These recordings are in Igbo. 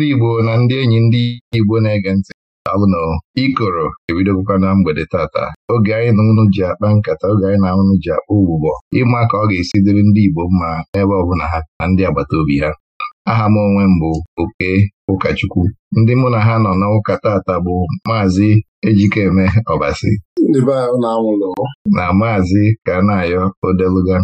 ndị Igbo na ndị enyi ndị Igbo na-ege ntị alụnụ ikoro ebidogokwa na mgbede tata oge anyị na unu ji akpa nkata oge anyị na unu ji akpa ụgbụgbọ ịma ka ọ ga-esi dịrị ndị Igbo mma n'ebe ọbụla ha na ndị agbata obi ha aha m onwe m bụ oke ụkọchukwu ndị mụ na ha nọ n'ụka tata bụ maazị Ejikeme Ọbasi na maazị Kanayo Odeluga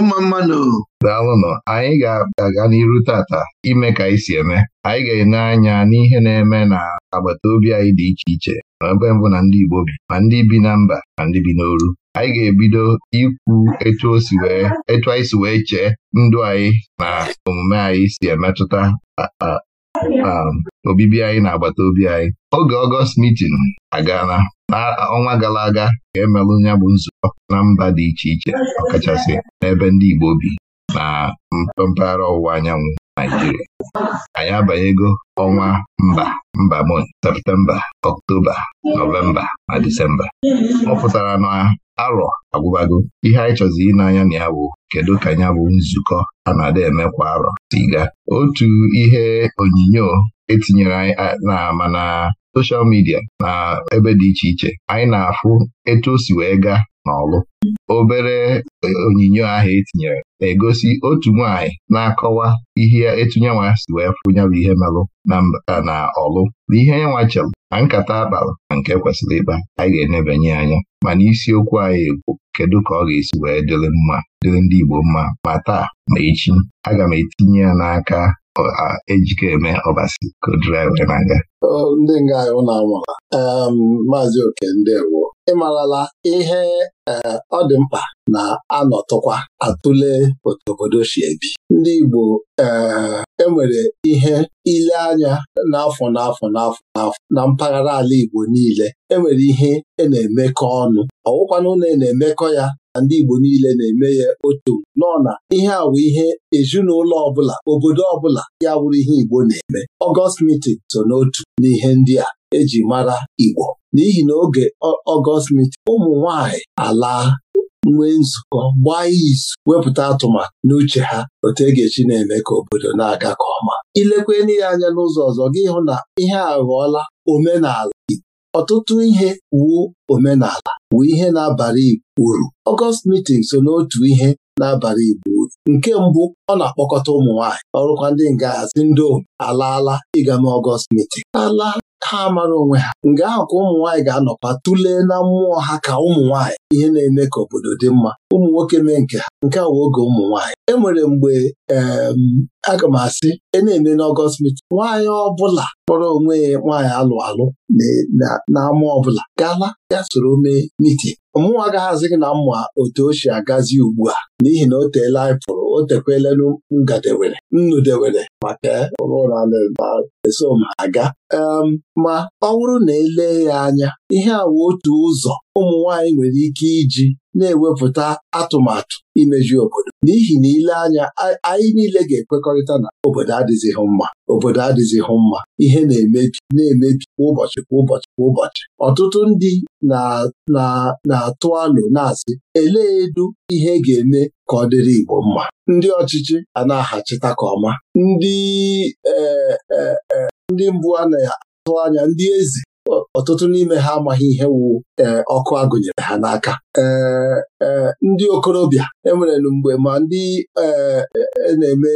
mma mmanụ daalụnụ anyị ga-aga n'iru tata ime ka anyị si eme anyị ga-enye anya n'ihe na-eme na agbata obi anyị dị iche iche na ebe mbụ na ndị Igbo bi ma ndị bi na mba ma ndị bi n'oru anyị ga-ebido ikwu etu anyị si wee chee ndụ anyị na omume anyị si emetụta Um, obibi anyị na agbata obi anyị oge ọgọst mitin agaala ọnwa gara aga ka emelụ ya bụ nzukọ na mba dị iche iche ọkachasị n'ebe ndị Igbo bi na mpaghara ọwụwa anyanwụ Naijiria anyị abanyego ọnwa mba mba septemba ọktoba nọvemba na disemba ọ pụtara na arọ agwụbago ihe anyị chọzi ine anya na ya bụ kedu ka ya bụ nzukọ a na-ada eme kwa arọ si gaa otu ihe onyinyo etinyere anyị na mana soshal midia na ebe dị iche iche anyị na-afụ etu o si wee gaa n'ọlụ obere e, onyinyo ahụ etinyere na-egosi otu nwanyị na-akọwa ihe etunyenwa si wee fụnyabụ ihe merụ na ọlụ na ihe nyenwa chelụ na nkata abalị na nke kwesịrị ịkpa anyị ga-enebanye anya mana isiokwu anyị egwu kedu ka ọ ga-esi wee dịrị mma dịrị ndị Igbo mma ma taa ma echi aga m etinye ya n'aka ejike eme ọbasi ka na-aga ndị nga anyị na-amụra maazị oke ịmarala ihe e, ọ dị mkpa na anọtụkwa atụle otu obodo si ebi ndị Igbo enwere e ihe ile anya n'afọ n'afọ n'afọ n'afọ na mpaghara ala Igbo niile enwere ihe e na-emekọ ọnụ ọwụkwanụ na e na-emekọ ya na ndị Igbo niile na-eme ya otu nọ na ihe a ihe ezinụlọ ọbụla obodo ọbụla ya bụrụ ihe Igbo na-eme Ọgọst mitin so n'otu n'ihe ndị a eji mara Igbo n'ihi na oge ọgọst mitin ụmụ nwanyị ala nwee nzukọ gbaa izu wepụta atụmatụ n'uche ha otu e ga-echi na-eme ka obodo na-aga ka ọma Ilekwa ya anya n'ụzọ ọzọ gị hụ na ihe a ghọọla omenala ọtụtụ ihe wuo omenala wuo ihe na-abara uru ọgọst mitin so n'otu ihe n'abalị Igbo nke mbụ ọ na-akpọkọta ụmụ nwaanyị ọrụkwa ndị nga hazi ndị ohu alaala ịga mee ọgọst meeting ala ha mara onwe ha nga ahụ ka ụmụ nwaanyị ga-anọkwa tụlee na mmụọ ha ka ụmụ nwaanyị ihe na-eme ka obodo dị mma ụmụ nwoke mee nke ha nke a oge ụmụ nwaanyị e nwere mgbe aga m asị e na-eme n'ọgọst meeting nwaanyị ọbụla kpọrọ onwe ya nwaanyị alụ alụ ọ ọbụla gala ya soro mee mitin mụnwa agaghịzị gị na mma otu o si agazi ugbu a n'ihi na o teela anyị pụrụ o tekwelelu ngadewere dewere maka eso m aga ma ọ bụrụ na elee ya anya ihe wụ otu ụzọ ụmụ nwanyị nwere ike iji na-ewepụta atụmatụ imeju obodo n'ihi na ile anya anyị niile ga-ekwekọrịta na obodo adịzighị mma obodo adịzighị mma ihe na-emebi na-emebi kwa ụbọchị kwa ụbọchị kwa ụbọchị ọtụtụ ndị na-atụ alụ na-asị elee edu ihe ga-eme ka ọ dịrị Igbo mma ndị ọchịchị a na-ahachita ka ọma ndị eh, eh, eh, ndị mbụ a na-atụ anya ndị ezi ọtụtụ n'ime ha amaghị ihe wu eh, ọkụ agụnyere ha n'aka eh, eh, ndị okorobịa enwere mgbe ma ndị na-eme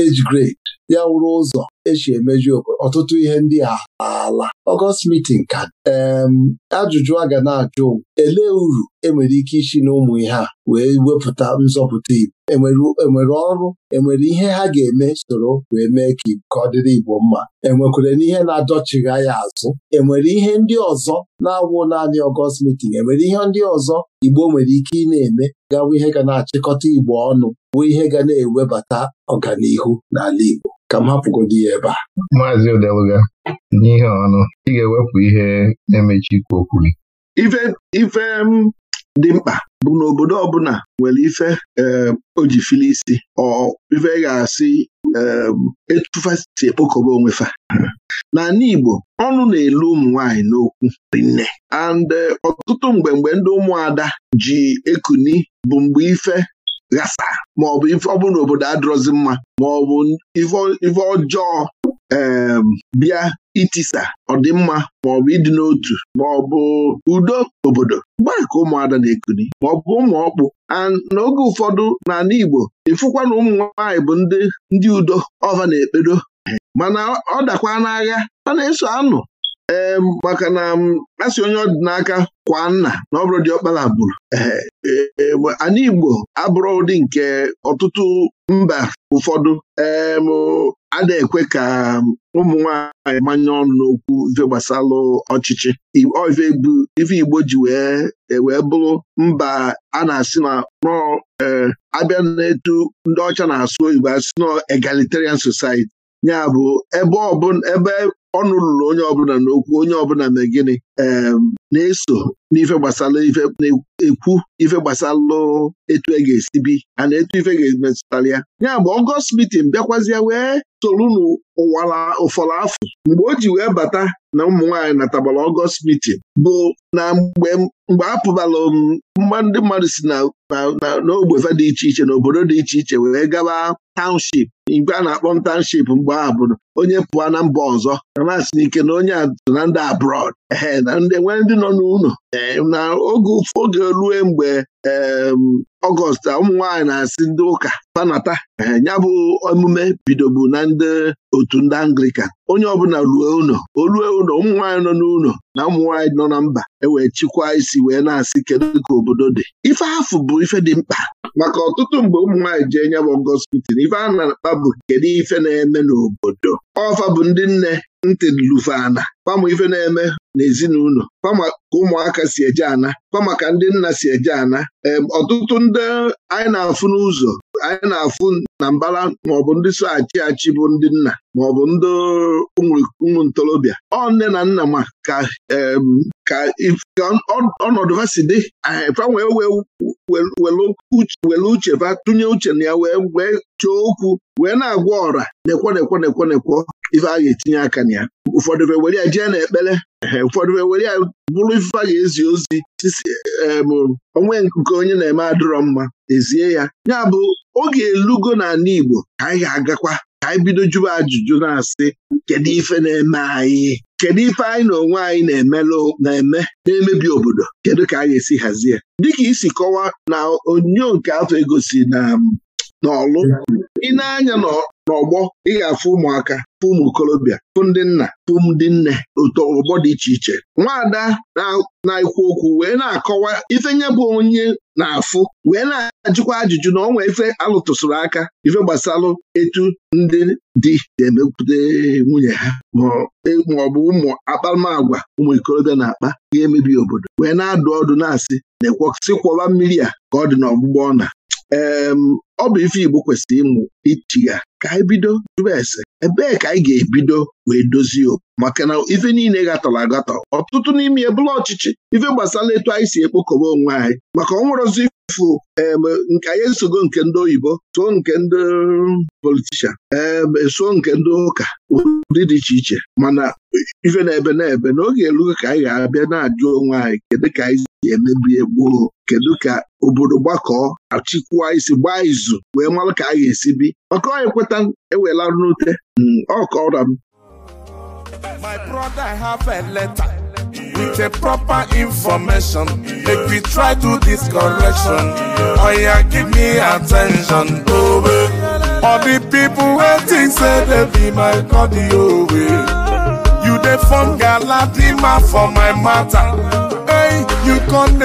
age grade ya wụrụ ụzọ esi emeju obodo ọtụtụ ihe ndị a ala ọgọst mitin ka em ajụjụ a ga na-ajụ elee uru enwere ike isi na ụmụ ihe a wee wepụta nzọpụta Igbo enwere e ọrụ enwere ihe ha ga-eme soro wee mee ka ka ọ dịrị Igbo mma enwekwere n'ihe na-adọchigha ya azụ enwere ihe ndị ọzọ na-awụ naanị ọgọst mitin enwere ihe ndị ọzọ Igbo nwere ike ị na-eme gawa ihe ga na-achịkọta Igbo ọnụ bụ ihe ga na-ewebata ọganihu n'ala Igbo ka m hapụgodi ya ebe a Maazị Odeluga n'ihe ọnụ ị ga-ewepụ ihe na-emechi ikwu okwu gị ife m dị mkpa bụ na obodo ọbụla nwere ife eh, ojifili isi ọ ife ga-asị eh, etufasi ekpokọba onwefa n'ala Igbo ọnụ na-elu ụmụ nwanyị n'okwu rinne and eh, ọtụtụ mgbe mgbe ndị ụmụada ji ekuni bụ mgbe ife ghasa maọbụ ife ọ bụrụ na obodo adịrọzi mma maọbụ ife ọjọọ em um, bịa itisa ọdịmma maọbụ ịdị n'otu maọbụ udo obodo gbaa ka ụmụada na-ekuni maọbụ ụmụ ọkpụ n'oge ụfọdụ n'ala Igbo ịfụkwa na ụmụ nwaanyị bụ ndị udo ọva na-ekpedo mana ọ dakwa n'agha a na-eso anụ ee maka na a onye ọdịnaka kwa nna na ọ bụrụ dị ọkpala bụrụ e, e, ana Igbo abụrụ ụdị nke ọtụtụ mba ụfọdụ ee a na-ekwe ka ụmụ nwaanyị manye ọnụ n'okwu ife gbasalụ ọchịchị ife Igbo ji e, wee bụrụ mba a na-asị na abịa na-etu ndị ọcha na-asụ oyibo asị na egalitarian society ya bụ ebe ọnụ lụrụ onye ọbụla n'okwu onye ọbụla na gịnị na-eso n'ife gbasara ife ekwu ife etu e ga-esi bi a na etu ife ga-emetụtara ya ya bụ ọgọst mitin bịakwazịa wee soro n'ụwara ụfọrọ afọ mgbe o ji wee bata na ụmụ nwaanyị natabara ọgọst mitin bụ na mgbe mgbe a mgba ndị mmadụ si na n'ogbeva dị iche iche na obodo dị iche iche wee gaba taụnship igwe a na-akpọ ntaụnship mgbe ahụ bụ onye pụọ na mba ọzọ na na-asị n'ike na onye atụ na ndị abroad ee na ndị nwee ndị nọ n'ụlọ na oge oge rue mgbe ọgọst ụmụ na-asị ndị ụka ee ya bụ emume bidobu na ndị otu ndị anglikan onye ọbụla ruo ụlọ o ruo ụlọ ụmụ nwaanyị nọ n'ụlọ na ụmụnwaanyị nọ na mba ewee chịkwaa isi wee na-asị kedu ka obodo dị ife afụ bụ ife dị mkpa maka ọtụtụ mgbe ụmụ nwaanyị jee nyabụ gospitin ife a na-akpa bụ kedu ife na-eme n'obodo ọfa bụ ndị nne ntị lufana Kpam ife na-eme n'ezinụlọ fama ka ụmụaka si eje ana kpamaka ka ndị nna si eje ana ọtụtụ ndị anyị na-afụ n'ụzọ anyị na-afụ na mbara maọbụ ndị so achị achị bụ ndị nna maọbụ ndị ụmụ ntorobịa ọ nne na nna ma ka ka ọnọdụ ha si dị fa wee were uche fa tụnye uche na ya wee wee chọọ okwu wee na-agwa ọra nekwo nekwo nekwo nekwo ife a ga-etinye aka na ya ụfọdụ were ya jee n'ekpere ụfọdụ were ya bụrụ ife a ga-ezi ozi onwe nke onye na-eme adịrọ mma ezie ya ya bụ oge elugo n'ala Igbo ka anyị ga-agakwa ka anyị bido jụba ajụjụ na-asị kedu ife na-eme anyị kedu ife anyị na onwe anyị na-eme na-emebi obodo kedu ka anyị esi hazie dịka isi kọwaa na onyonyo nke afọ egosi na um, n'ọlụ ị na-anya n'ọgbọ ị ga-afụ ụmụaka fụ ụmụ okorobịa fụ ndị nna fụ ndị nne ụtọ, ụgbọ dị iche iche nwaada na-ekwu okwu wee na-akọwa ife nye bụ onye na-afụ wee na-ajụkwa ajụjụ na ọnwa ife alụtụsụrụ aka ife gbasalụ etu ndị di ga-emepụta nwunye ha e, ma ọ bụ ụmụ akparamagwa ụmụ ikorobịa na-akpa ga-emebi obodo wee na-adụ ọdụ na-asị na kwọwa mmiri a ka ọ dị ọgbụgbọ ọna ọ bụ ife Igbo kwesịrị ịmụ ichi ya ka anyị bido jụba ese ebee ka anyị ga-ebido wee dozie okwu maka na ife niile gatọrọ agatọ ọtụtụ n'ime ya ọchịchị ife gbasara etu anyị si ekpokọba onwe anyị maka ọnwụrụzi fụ eme nke anyị nsogbu nke ndị oyibo so nke ndị politishan so nke ndị ụka ụdị dị iche iche mana ife na-ebe na-ebe n'oge erugo ka anyị ga-abịa na-ajụ onwe anyị kedu ka anyị si emebi gboo kedu ka obodo gbakọọ achịkwuo isi gbaa izu wee mara ka a ga-esi bi maka onye kweta ewela n'ute hmm, ọkọra m My brother have letter with a proper information. Make we try to this correction. Oh yeah, give me attention. Oh, All the people waiting say they be my cardio. You dey form galadima for my matter. why you come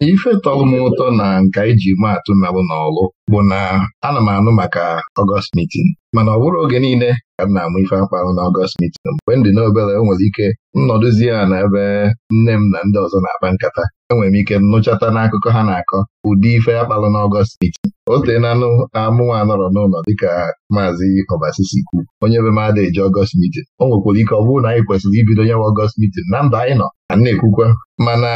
ife tọrọ m ụtọ na nka iji maa atụ nalụ n'ọlụ bụ na ana m anụ maka Ọgọst mitin. mana ọ bụrụ oge niile ka m na-amụ ife akpa ahụ n'ọgọst mitin mgbe m dị o nwere ike nnọdụzie ya na ebe nne m na ndị ọzọ na-akpa nkata enwere m ike nnụchata n'akụkọ ha na-akọ ụdị ife akpalụ n'ọgọst mitin o tee na anụ amụwa anọrọ n'ụlọ dịka maazị ọbasisi kwu onye be m ada eji ọgọst mitin o nwekwara ike ọ bụrụ na anyị kwesịrị ibido nyewa ọgọst mitin na ndụ anyị nọ a ekwukwa mana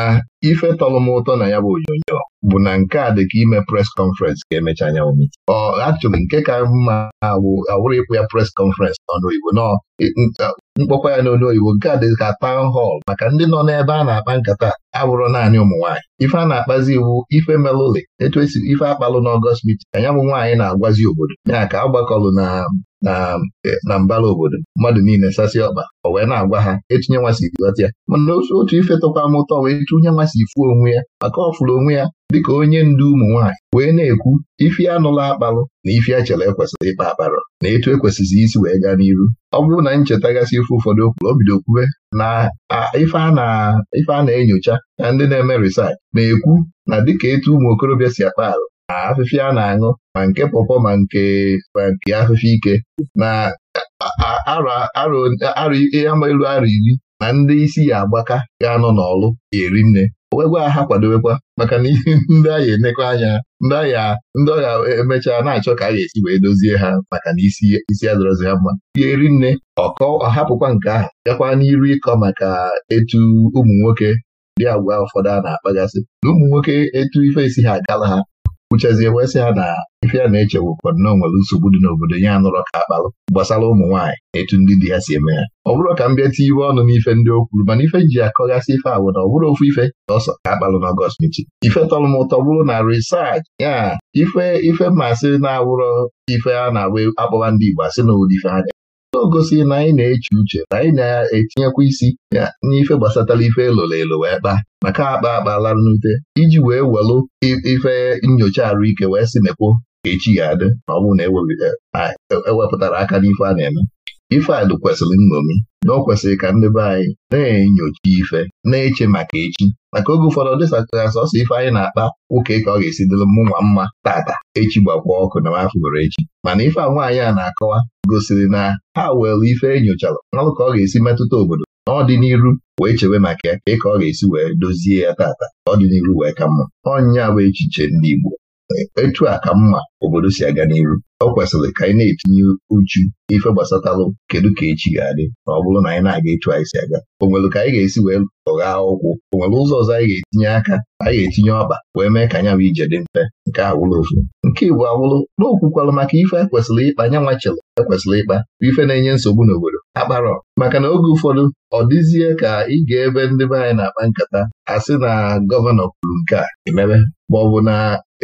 ife tọrọ m ụtọ na ya bụ onyonyo bụ na nke a dị ka ime pres Conference ga emecha anyanwụ ọ achọghị nke ka mma awụrụ ịkwụ ya pres conference n'ọnụ Igbo nọ mkpọkwa ya n'olu oyibo nke a dị ka town hall maka ndị nọ n'ebe a na-akpa nkata abụrụ naanị ụmụ nwaanyị ife a na-akpazi iwu ife melụli etu esi ife akpalụ n'ọgọst mit anya bụ nwaanyị na-agwazi obodo ya ka agbakọlụ na eh, na mbara obodo mmadụ niile sasị ọkpa ọ wee na-agwa ha etinye nwasị ghọta ya mana otu ife tọkwa m ụtọ wee tụnye nwasị ifu onwe ya maka ọ fụrụ onwe ya dịka onye ndu ụmụ nwaanyị wee na-ekwu ife anụla akpalụ na ife echele ekwesịrị ịkpa akparọ na etu ekwesịzị isi wee gaa n'iru ọ bụrụ na gasị ife ụfọdụ okwuru o bido kwube na ife a na-enyocha na ndị na-eme risaach na-ekwu na dịka etu ụmụ okorobịa si akpa arụ na afịfịa a na-aṅụ ma nke pọpọ ma nke ma nke afịfịa ike na arọ elu arọ iri na ndị isi ya agbaka ga-anọ n'ọlụ ga-eri nne owegwa aha kwadowekwa maka na ndị agha enekọ anya ndị agha ndị ọgha emechaa na-achọ ka a ga-esi wee dozie ha maka na isi isi adọrọzi ha mma ihe ri nne ọkọ ọhapụkwa nke ahụ gakwa n'iru ịkọ maka etu ụmụ nwoke dị agwa ụfọdụ a na-akpagasị na ụmụ nwoke etu ife esi ha agala ha uchezie wee sị ha na ife ya na-eche wụkwa nnọọ nwere nsogbu dị n'obodo ya anụrọ ka akpalụ gbasara ụmụ nwaanyị etu ndị di ya si eme ya ọ bụrụ ka m bịa tie iwe ọnụ n'ife ndị o kwuru mana ife ji akọghasị ife awụ na ọ bụrụ ofu ife na ọsọ ka akpalụ ọgọst mechi ife tọrọ m ụtọ bụrụ na risach ya ife ife masị na-awụrọ ife a na-agba akpọwa ndị Igbo asị na ụdị ife anya o si na anyị na-eche uche na anyị na-etinyekwa isi ya n'ife gbasatara ife eloro elo wee kpaa maka akpa akpala nnute iji wee welụ ife nyocha arụike wee si mekwo ka echi ya adị ma ọ bụrụ na ewepụtara aka n'ife a na-eme ife kwesịrị nnomi na ọ kwesịrị ka ndị be anyị na-enyocha ife na-eche maka echi maka oge ụfọdụ dịsatara sọsọ ife anyị na-akpa ụka ka ọ ga-esi dịrị mmụnwa mma tata echi gbakwa ọkụ na mafụgoro echi mana ife a nwaanyị a na-akọwa gosiri na ha were ife enyochara ọrụ ka ọ ga-esi metụta obodo n'ọdịn'iru wee chewe maka ya ka ọ ga-esi wee dozie ya tata ọdịniru wee ka mma ọnya bụ echiche ndị Igbo etu a ka mma obodo si aga n'iru ọ kwesịrị ka anyị na-etinye uchu ife gbasatalụ kedu ka echi ga-adị ma ọ bụrụ na anyị na-aga ịchụ anyị si aga o ka anyị ga-esi wee ọgha ụkwụ o ụzọ ọzọ anyị ga-etinye aka anyị ga-etinye ọkpa wee mee ka anya bụ ije dị mfe nke awụrụ ofu nke Igbo awụrụ n'okwukwarụ maka ife ekwesịrị ịkpa anya nwachilụ ekwesịrị ịkpa bụ ife na-enye nsogbu n'obodo akparọ maka na oge ụfọdụ ọ dịzie ka ị ga-ebe ndị be anyị na-akpa nkata sị na gọvanọ kwuru nke a emebe ma ọ bụ na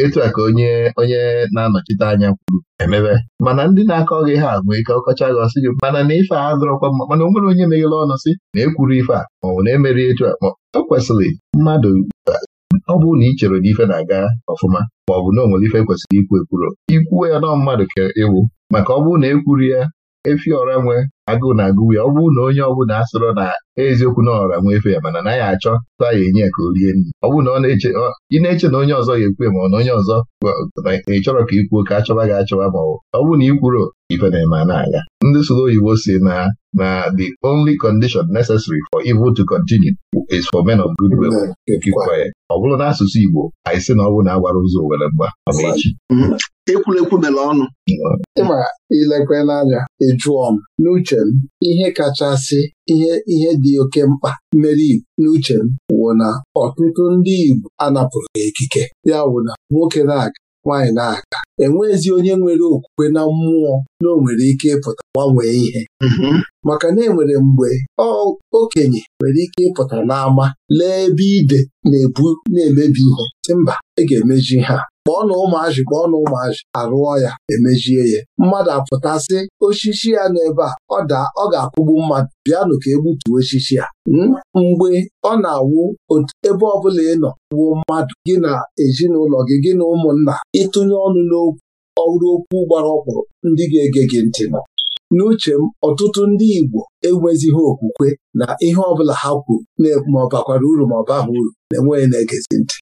etu a ka onye onye na-anọchite anya kwuru emebe mana ndị na-akọ gị ha agwụ ike ọkọcha gị ọsị gị mana na ife a dọrọkwa mma mana o nwere onye meghere ọnụ sị na ekwuru ife a maọbụ na emeri etu a ma o kwesịrị mmadụ ọ bụrụ na ị chere na ife na-aga ọfụma maọbụ na o nwere ife kwesịrị ikwu ekwuro ikwuwe ya nọ mmadụ ka ewu maka ọ bụrụ na ekwuru ya efi ọra nwe agụụ na-agụwe ọ bụrụ na onye ọbụla asọrọ na eziokwu na ọra nwa efe ya mana naghị achọ taa ya enye ka o rie nri ọ bụrụ na ọ na-eche ị na-eche na onye ọzọ ga ekwu ma ọ na onye ọzọ ị chọrọ ka ikwuo ka achọwa gị achọwa ma ọ bụrụ na ị kwuro ife na-eme na-aga ndị soro oyibo si na na the only condition necessary for evil to continue is for men of good will to keep quiet ọ bụrụ na asụsụ Igbo anyị sị na ọ bụrụ na agbara ụzọ were mgba echi mm-hmm. ekwurekwu mere ọnụ ịma ilekwe n'anya ịjụọ m n'uche n'uche ihe kachasị ihe ihe dị oke mkpa mere Igbo n'uche m wụ na ọtụtụ ndị Igbo anapụrụ ekike ya wụ na nwoke na-aga nwaanyị na-aga enweghịzi onye nwere okwukwe na mmụọ na nwere ike ịpụta gbanwee ihe mm-hmm. maka na enwere mgbe okenye nwere ike ịpụta n'ama lee ebe ide na-ebu na-emebi ihe si mba ị e ga-emeji ha kpọọ na ụmụazị kpọọ na ụmụazị arụọ ya emejie ya mmadụ apụtasị osisi ya n'ebe a ọ daa ọ ga akwụgbu mmadụ bịanụ ka egbutuo osisi ya hmm? mgbe ọ na-awụ ebe ọbụla ị nọ wuo mmadụ gị na ezinụlọ gị gị na ụmụnna ịtụnye ọnụ n'okwu ọrụ okwu gbara ọkpụrụ ndị ga-ege gị ntị nọ n'uche m ọtụtụ ndị Igbo enwezighị okwukwe na ihe ọbụla ha kwuru na-ekwu ma ọ bakwara uru ma ọ baghị uru na-enweghị na-egezi ntị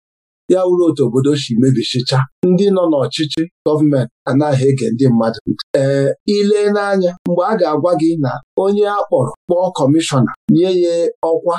ya wuru otu obodo si mebisicha ndị nọ n'ọchịchị gọọmenti anaghị ege ndị mmadụ ee ile n'anya mgbe a ga-agwa gị na onye a kpọrọ kpọọ kọmishọna nye ya ọkwa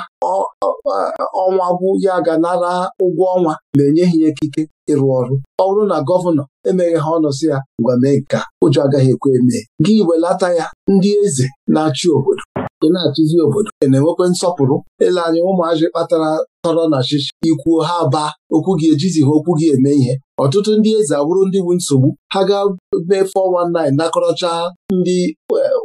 ọnwa bụ ya ga nara ụgwọ ọnwa ma enyeghị ya ekike ịrụ ọrụ ọ bụrụ na gọvanọ emeghị ha ọnụ si ya ngwa mee nke ụjọ agaghị ekwe emee gị welata ya ndị eze na-achị obodo ị na-achịzi obodo ị e na-enwekwa nsọpụrụ ele anya ụmụazị kpatara tọrọ na chịchị ikwuo ha baa okwu gị ejizi ha okwu gị eme ihe ọtụtụ ndị eze abụrụ ndị bụ nsogbu ha ga mee 419 nakọrọcha ndị eh,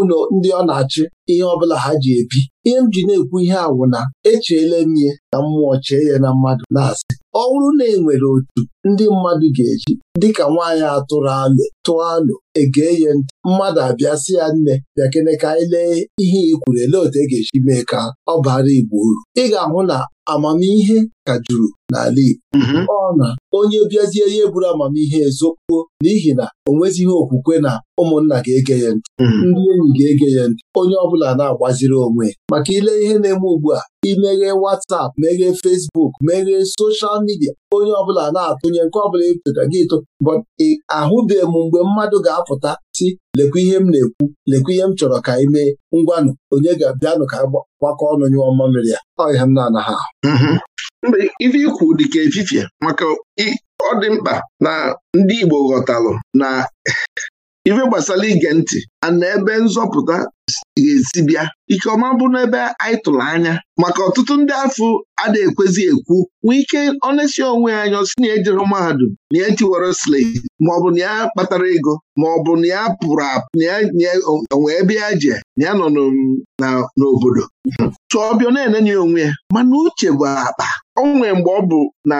ụlọ ndị ọ na-achị ihe ọbụla ha ji ebi ihe m ji na-ekwu ihe awụ na echeela m ihe na mmụọ chee ya na mmadụ na-asị ọ bụrụ na e nwere otu ndị mmadụ ga-eji dịka nwaanyị atụrụ alụ tụọ alụ egee ya ntị mmadụ abịa sị ya nne bịakene ka anyị lee ihe ikwuru elee otu e ga-eji mee ka ọ bara Igbo uru ị ga-ahụ na amamihe ka juru n'ala Igbo mhm. ọ na onye bịazie ihe buru amamihe ezokwuo n'ihi na o nwezighị okwukwe na ụmụnna ga-ege ya ntị mhm. ndị enyi ga-ege ya ntị onye bụla na-agbaziri onwe maka ile ihe na-eme ugbu a imeghe WhatsApp meghee Facebook meghee soshal midia onye ọ bụla na-atụnye nke ọbụla ịtụta e gị ịtụ ahụbeghị m mgbe mmadụ ga-apụta si lekwa ihe m na-ekwu lekwa ihe m chọrọ ka ị mee ngwanụ onye ga-abịanụ ka gbakọ ọnụ nyụọ mmamịrị ya ihe m na-anaghị ahụ mgbe mm-hmm. ife ikwu dịka efifie maka ọ dị mkpa na ndị Igbo ghọtalụ na ife gbasara ige ntị na ebe nzọpụta ga-esi bịa ike ọma bụ n'ebe anyị tụrụ anya maka ọtụtụ ndị afọ ada ekwezi ekwu nwee ike onesi onwe anya si na ejere mahadum na ya e tiwara slate maọbụ na ya kpatara ego maọbụ na ya pụrụ apụ na ya onwe ebe ya je na ya nọ n'obodo tụọ ọbịa na-enenye onwe ya mana uche bụ akpa o nwee mgbe ọ bụ na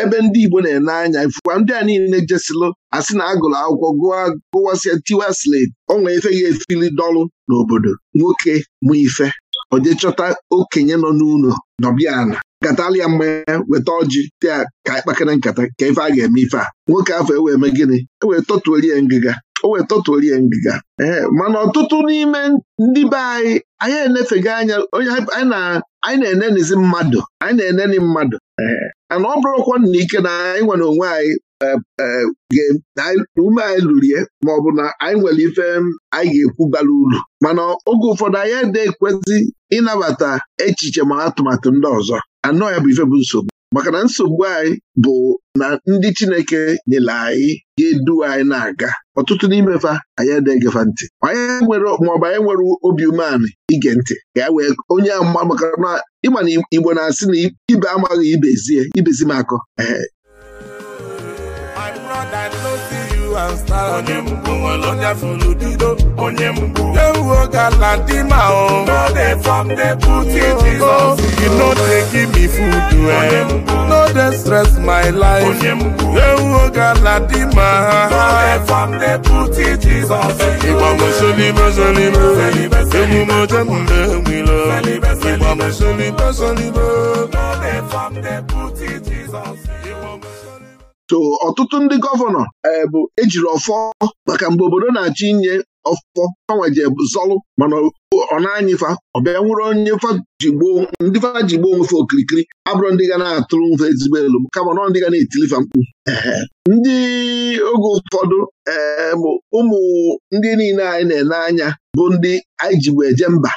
ebe ndị Igbo na-ene anya ifụkwa ndị a niile jesilụ asị na agụrụ akwụkwọ gụwasịa tiwa slate ọ nwee ife ya efili dọlụ n'obodo nwoke mụ ife oje okenye nọ n'ụlọ nọbịana katalia mmanya weta ọjị taa ka anyị nkata ka ife a ga-eme ife a nwoke afọ ewee eme gịnị ewee ya ngịga o wee tọtuorie ngịga ee mana ọtụtụ n'ime ndị be anyị anyị enefego anya anyị na-enenizi mmadụ anyị na-eneni mmadụ ana ọ bụrụkwa na ike na anyị nwere onwe anyị e, e, na ume anyị lurie bụ na anyị nwere ife anyị ga-ekwu bara uru mana oge ụfọdụ anyị ede ekwezi ịnabata echiche ma atụmatụ ndị ọzọ anọ ya bụ ife bụ nsogbu maka na nsogbu anyị bụ na ndị Chineke nyere anyị ndu anyị na-aga ọtụtụ n'ime fa anyị nti egefa ntị maọbụ anyị nwere obi umeanị ige ntị ka ya wee onye ịma na Igbo na-asị na ibe amaghị ibezie ibezi m akọ onye mbụ nwere onye fụrụ onye mbụ ewu gala dị ma o no dey form dey put in Jesus you no dey give me food eh no dey stress my life onye mbụ ewu dị ma no dey form put in Jesus mo so ọtụtụ ndị gọvanọ e, bụ ejiri ọfọ maka mgbe obodo na-achọ inye ọfọ fanwaje zọlụ mana ọ na ọ ọbịa nwere onye ndị fa ji gboo onwefe okirikiri abụrụ ndị ga na-atụrụ mfe ezigbo elu kama nọ ndị ga na-etilifa mkpu ndị oge ụfọdụ ee ụmụ ndị niile anyị na-ene anya bụ ndị anyị jigbo eje mba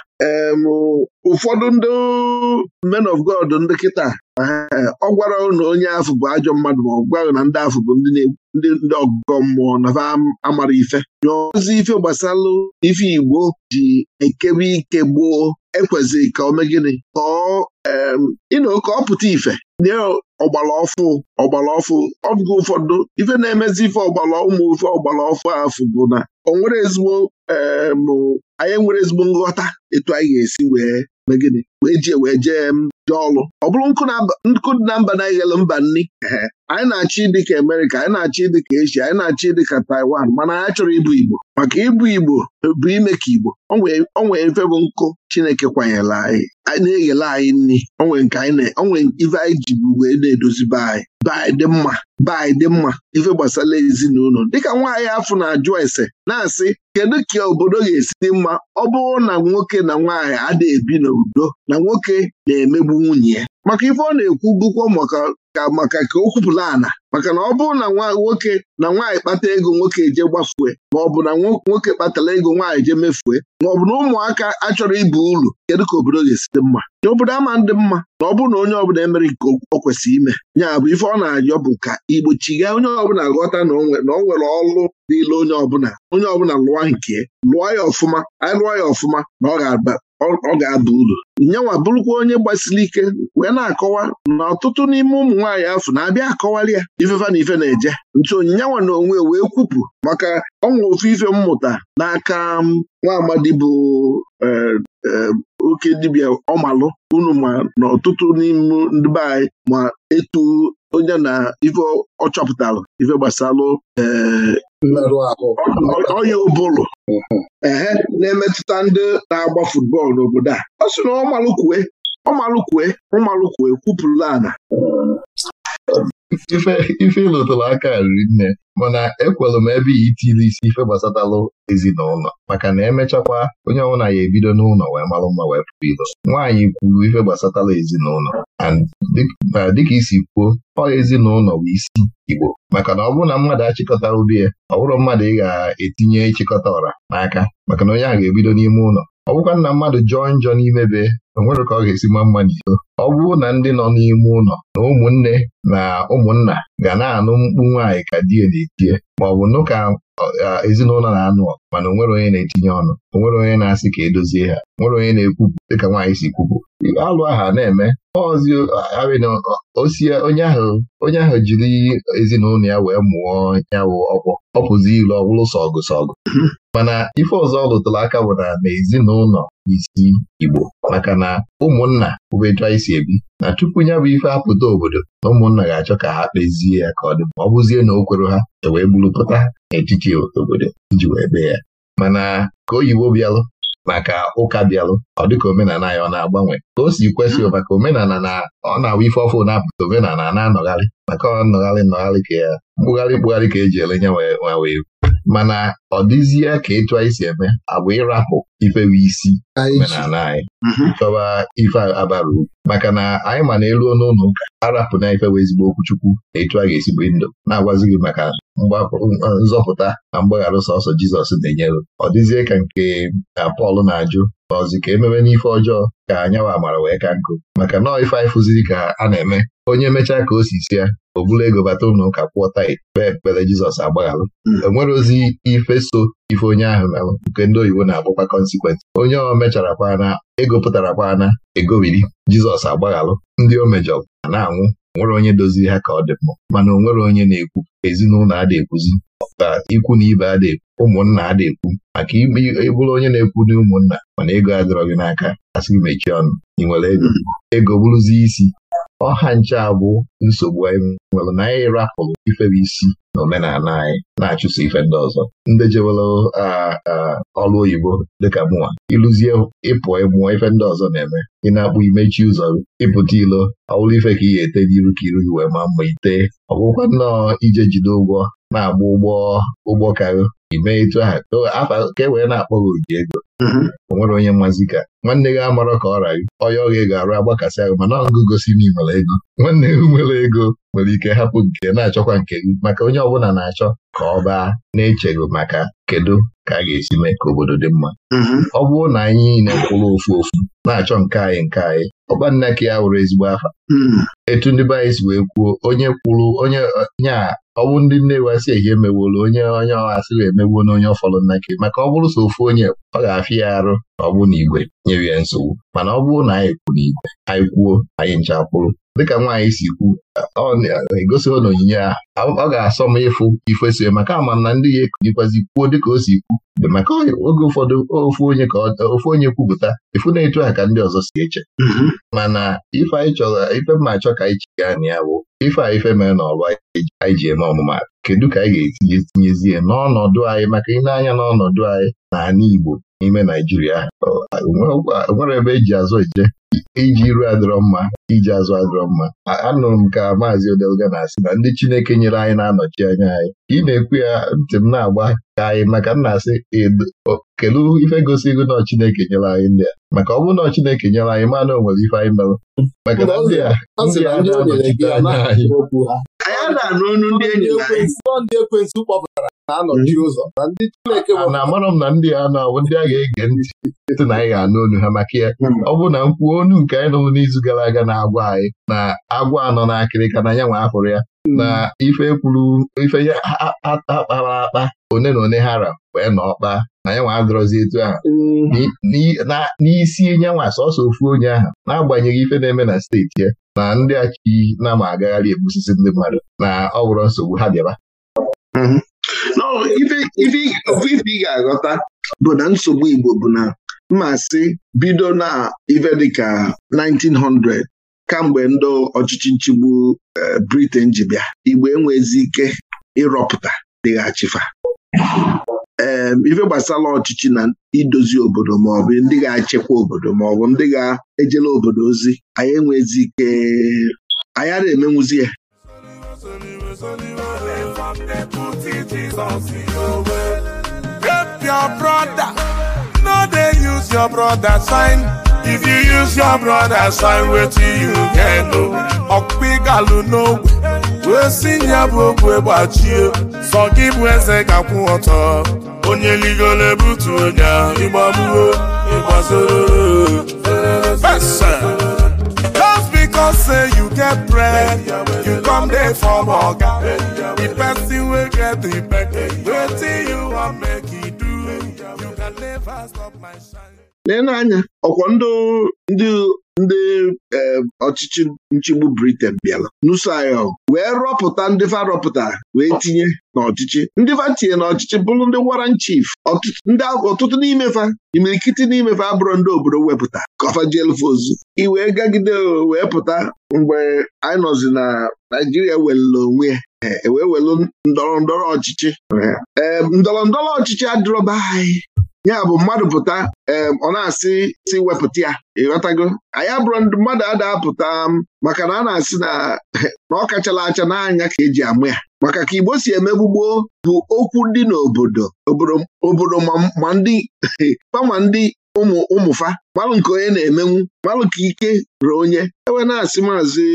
ụfọdụ ndị men of God ndị kịta eh, ọ gwara na onye afụ bụ ajọ mmadụ ma ọ gwaghị na ndị afụ bụ ndị ọgụgọ mmụọ na amara ife ozi ife gbasalụ ife Igbo ji ekebe ike gboo ekwezi ka o mee gịnị Kọọ ọ ịnọ ka ọ pụta ife nye ọgbala ọfụ ọgbala ọfụ ọ bụghị ụfọdụ ife na-emezi ife ọgbala ụmụ ife ọgbala ọfụ afụ bụ na o nwere ezigbo anyị nwere ezigbo nghọta etu anyị ga-esi wee megide wee jee wee jee jee ọlụ ọ bụrụ nkụ na mba na-eghelu mba nri anyị na-achọ ịdị ka Amerịka anyị na-achọ ịdị ka Eshia anyị na-achọ ịdị ka Taiwan mana anyị chọrọ ịbụ Igbo maka ịbụ Igbo bụ ime ka Igbo onwe mfe bụ nkụ Chineke kwanyela anyị na-eghele anyị nri onwe nke anyị onwe ife anyị ji bụ wee na-edozibe anyị baị dị mma baị dị mma ife gbasara ezinụlọ dịka nwaanyị afọ na-ajụ ese na-asị kedu ka obodo ga-esi dị mma ọ bụrụ na nwoke na nwaanyị adịghị ebi n'udo na nwoke na-emegbu nwunye ya maka ife ọ na-ekwu bụkwa maka ka o kwupụla ana maka na ọ bụrụ na nwoke na nwaanyị kpata ego nwoke eje gbafue ma ọ bụ na nwoke kpatara ego nwaanyị je mefue ma ọ bụ na ụmụaka achọrọ ibu uru kedu ka obodo ga-esi dị mma na obodo ama ndị mma na ọ bụrụ na onye ọbụla emere nke o kwesịrị ime nya bụ ife ọ na-ayọ bụ ka igbochiga onye ọbụla ghọta na o nwere ọrụ n'ile onye ọbụla onye ọbụla lụọ nke lụọ ya ọfụma anyị lụọ ya ọfụma na ọ ga-aba ọ ga-aba uru nyenwa bụrụkwa onye gbasiri ike wee na-akọwa na ọtụtụ n'ime ụmụ nwaanyị afọ na-abịa akọwali ya ifefa na ife na-eje nchi onyinyenwa na onwe wee kwupụ maka ọnwa ofu ife mmụta n'aka um, nwa amadi bụ e, e, oke dibia ọmalụ unu ma na ọtụtụ n'ime ndị be anyị ma etu onye na ife ọ chọpụtara ife gbasalụ e, mmerụ ahụ ehe na-emetụta ndị na-agba futbọọlụ n'obodo a ọ sị na ọmalụkwue ọmalụkwue ụmalụkwue kwupụrụla ana ife ịlụtụrụ aka riri nne mana ekwelụ m ebe itili isi ife gbasatalụ ezinụlọ maka na emechakwa onye ọbụla ya ebido n'ụlọ wee malụ mma wee pụrụ ilo nwaanyị kwuru ife gbasatala ezinụlọ na dịka isi kwuo ọ ezinụlọ bụ isi Igbo maka na ọ bụrụ na mmadụ achịkọta ubi ya ọ bụrụ mmadụ ị ga-etinye ịchịkọta ọra n'aka maka na onye ahụ ga-ebido n'ime ụlọ ọ bụkwa nna mmadụ jọọ njọ n'ime be onwere ka ọ ga-esi ma mma n'iko ọ bụrụ na ndị nọ n'ime ụlọ na ụmụnne na ụmụnna ga na-anụ mkpu nwaanyị ka di die na etinye ma ọ bụ nụ ka ezinụlọ na-anụ ọgụ mana onwere onye na-etinye ọnụ onwere onye na-asị ka edozie ha nwere onye na-ekwupụ dịka nwaanyị si kwupụ alụ aha na-eme onye ahụ onye ahụ jiri ezinụlọ ya wee mụọ yawụ ọgwọ ọ pụzi ilu ọ bụrụ sọ ọgụ sọ mana ife ọzọ ọ lụtụrụ aka bụ na n'ezinụlọ isi Igbo maka na ụmụnna bụbetua isi ebi na tupu ya bụ ife apụta obodo na ụmụnna ga-achọ ka ha kpezie ya ka ọ dị ma ọ bụzie na o kwere ha e wee bụrụpụta n'etiti obodo iji wee bee ya mana ka oyibo bịalụ maka ụka bịalụ ọ ka omenala ya ọ na-agbanwe ka o si kwesị hmm. maka omenala na ọ na-awụ ife ọfụ na-apụta omenala na-anọgharị maka ọ nnọgharị nnọgharị ka ya mkpụgharị mkpụgharị ka eji ele nye wee mana ọ dịzie ka etu anyị si eme agwa ịrapụ ifewe isi omenala anyị mhm. chọba ife abara maka na anyị ma na elu ọnụ ụlọ arapụ na ifewe ezigbo okwuchukwu na etu a ga-esigbo ndụ na-agwazi gị maka nzọpụta na mgbagharụ sọsọ Jizọs na-enyere ọ dịzie ka nke Pọl na-ajụ n'ọzi ka ememe n'ife ọjọọ ka anyanwụ amara wee ka nkụ maka nọọ ife anyị fụziri ka a na-eme onye mechaa ka o si si ya o bụla ego bata ụlọ ụka kwụọ tait kpee ekpere Jizọs agbagharụ mm. enwere ozi ife so ife onye ahụ merụ nke ndị oyibo na-akpọkwa kọnsikwensị onye ọ mechara kwana ego pụtara kwana egobiri Jizọs agbaghalụ ndị o mejọrọ a na-anwụ nwere onye doziri ha ka ọ dị mma mana nwere onye na-ekwu ezinụlọ adị ekwuzi ka ikwu na ibe na-ekwu ụmụnna adị ekwu maka ịbụrụ onye na-ekwu na ụmụnna mana ego adịrọ gị n'aka asị gị mechie ọnụ ị nwere ego ego bụrụzi isi ọha nche abụ nsogbu anyị nwere na anyị rapụrụ ifere isi na omenala anyị na-achụso ife ndị ọzọ ndị jewere ọrụ oyibo dịka mụnwa ịlụzie ịpụ ịmụọ ife ndị ọzọ na-eme ị na-akpụ imechi ụzọ ịpụta ilo ọwụrụ ife ka ị ga-ete n'iru ka iru gị wee ma mma ite ọgwụkwa nnọọ ije jide ụgwọ na-agba ụgbọ ụgbọ karị Ime mee etu ahụ afa ka e wee na-akpọ gị oji ego mm-hmm. o nwere onye mmazi ka nwanne gị amarọ ka ọ ọ ọya ọghị ga-arụ agbakasị ahụ mana ọgụ gosi na ị ego nwanne gị nwere ego nwere ike hapụ nke na-achọkwa nke gị maka onye ọbụla na-achọ ka ọ baa na-echeghị maka kedu ka a ga-esi mee ka obodo dị mma mm-hmm. ọ bụrụ na anyị niile kwụrụ ofu ofu na-achọ nke anyị nke anyị ọgbanne ka ya wụrụ ezigbo afa mm-hmm. etu ndị be anyị si wee kwuo onye kwuru onye nye ọ bụ ndị nne wasị ehi emewolu onye onye ọghasịghị emewo na onye ọfọrọ nnake maka ọ bụrụ so ofu onye ọ ga-afịa ya arụ na ọ na igwe nyere ya nsogbu mana ọ bụrụ na anyị kwuru igwe anyị kwuo anyị ncha kwụrụ dịka nwaanyị si kwu ọ na onyinye ọ ga-asọ m ịfụ ifeso maka ama ndị ya ekunyekwazị kwuo ka o si kwu maka oge ụfọdụ ofu onye ka ofu onye kwupụta efu na-etu a ka ndị ọzọ si eche mm-hmm. mana ife anyị chọrọ ife mma achọ ka anyị chiga anyị ya bụ ife a ife mere na ọba anyị ji eme ọmụma kedu ka anyị ga-etinyezie n'ọnọdụ anyị maka ịnanya n'ọnọdụ anyị na ala Igbo n'ime Naijiria nwere ebe eji azụ eje iji iru adịrọ mma iji azụ adịrọ mma anụrụ m ka maazị Odelga na-asị na ndị Chineke nyere anyị na-anọchi anya anyị ị na-ekwu ya ntị m na-agba ka anyị maka m na-asị kelu ife gosi ihu na Chineke nyere anyị ndị a maka ọ bụrụ na Chineke nyere anyị mana o nwere ife anyị merụ maka na ndị a ndị a na-anọchite anya anyị na-anụ ndị enyi ndị ekwensu kpọpụtara na-anọchi hmm. ụzọ na ndị Chineke na amarọ m na ndị a na ndị a ga-ege ntị site na anyị ga-anụ onu ha maka ya hmm. ọ bụ na mkpu onu nke anyị nụrụ n'izu gara aga na-agwa anyị na agwa anọ n'akịrịka na ya nwa ahụrụ ya hmm. na ife kwuru ife ya akpara akpa one na one hara wee na ọkpa na ya nwa adọrọzi etu ahụ n'isi nyanwa sọsọ ofu onye ahụ n'agbanyeghị ife na-eme na steeti ya na ndị achi na ama agagharị egbusisi ndị mmadụ na ọ bụrụ nsogbu ha bịaba mhm. ife ị ga-aghọta bụ na nsogbu Igbo bụ na mmasị bido na ife dịka 1900 kamgbe ndị ọchịchị nchigbu eh, Britain ji bịa Igbo enwezi ike ịrọpụta dịghachifa ee ife gbasara ọchịchị na idozi obodo maọbụ ndị ga-achịkwa obodo maọbụ ndị ga-ejela obodo ozi anyị enwezi ike anyị ara emenwuzi ya only your Help your brother. No, they use your brother sign. If you use your brother sign, wait till you get no. Okpigalu no. Wee si ya bụ ogwe gbachie sọ gị bụ eze ga-akwụ ọtọ onye ligolo ebutu onye ahụ ịgbagbuo ịgbazoro fesa know say you get bread you come dey for oga the person wey get the bag wetin you wan make e do you can never stop my shine Lee anya ọkwa ndị ndị e, ọchịchị nchigbu Britain bịara nuso anyị wee rọpụta ndị farọpụta rọpụta wee tinye n'ọchịchị ndị fa tinye n'ọchịchị bụrụ ndị waran chief ọtụtụ n'imefa imirikiti n'imefa abụrụ ndị obodo wepụta kọfajelfozu iwee gagide wee pụta mgbe anyị nọzi na Naijiria welere onwe ya ewee e, welu ndọrọ ndọrọ ọchịchị e, ndọrọ ndọrọ ọchịchị adịrọba anyị ya bụ mmadụ pụta ọ na-asị si wepụta ya ịghọtago anyị abụrụ ndị mmadụ adapụta maka na a na-asị na na ọ kachala acha n'anya ka eji amụ ya maka ka Igbo si emegbugbo bụ okwu dị n'obodo obodo ma ndị ndị ụmụ ụmụfa malụ nke onye na-emenwu malụ ka ike ruo onye ewe na-asị maazị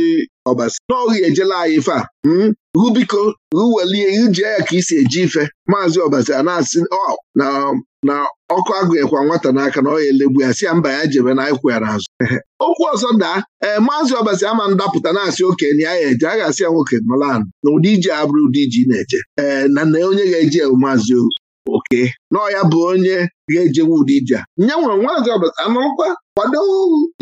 ọbasi ya ejela anyị ife a rubiko hmm? ruwelie ijee ya ka isi eji ife maazị ọbasi a na-asị na ọkụ agụnyekwa nwata n'aka na ọ ya elegbu ya si ya mba ya jebe na anyịkwụ ya okwu ọzọ daa ee eh, maazị ọbasi ama ndapụta na-asị oke na ya eje a ga-asị ya nwoke malan na ụdị ji abụrụ ụdị ji na-eje ee eh, na na onye ga-eji maazị oke nọọ ya bụ onye ga-ejewe ụdị ije nye nwere nwaazị ọbụla anụrụkwa kwado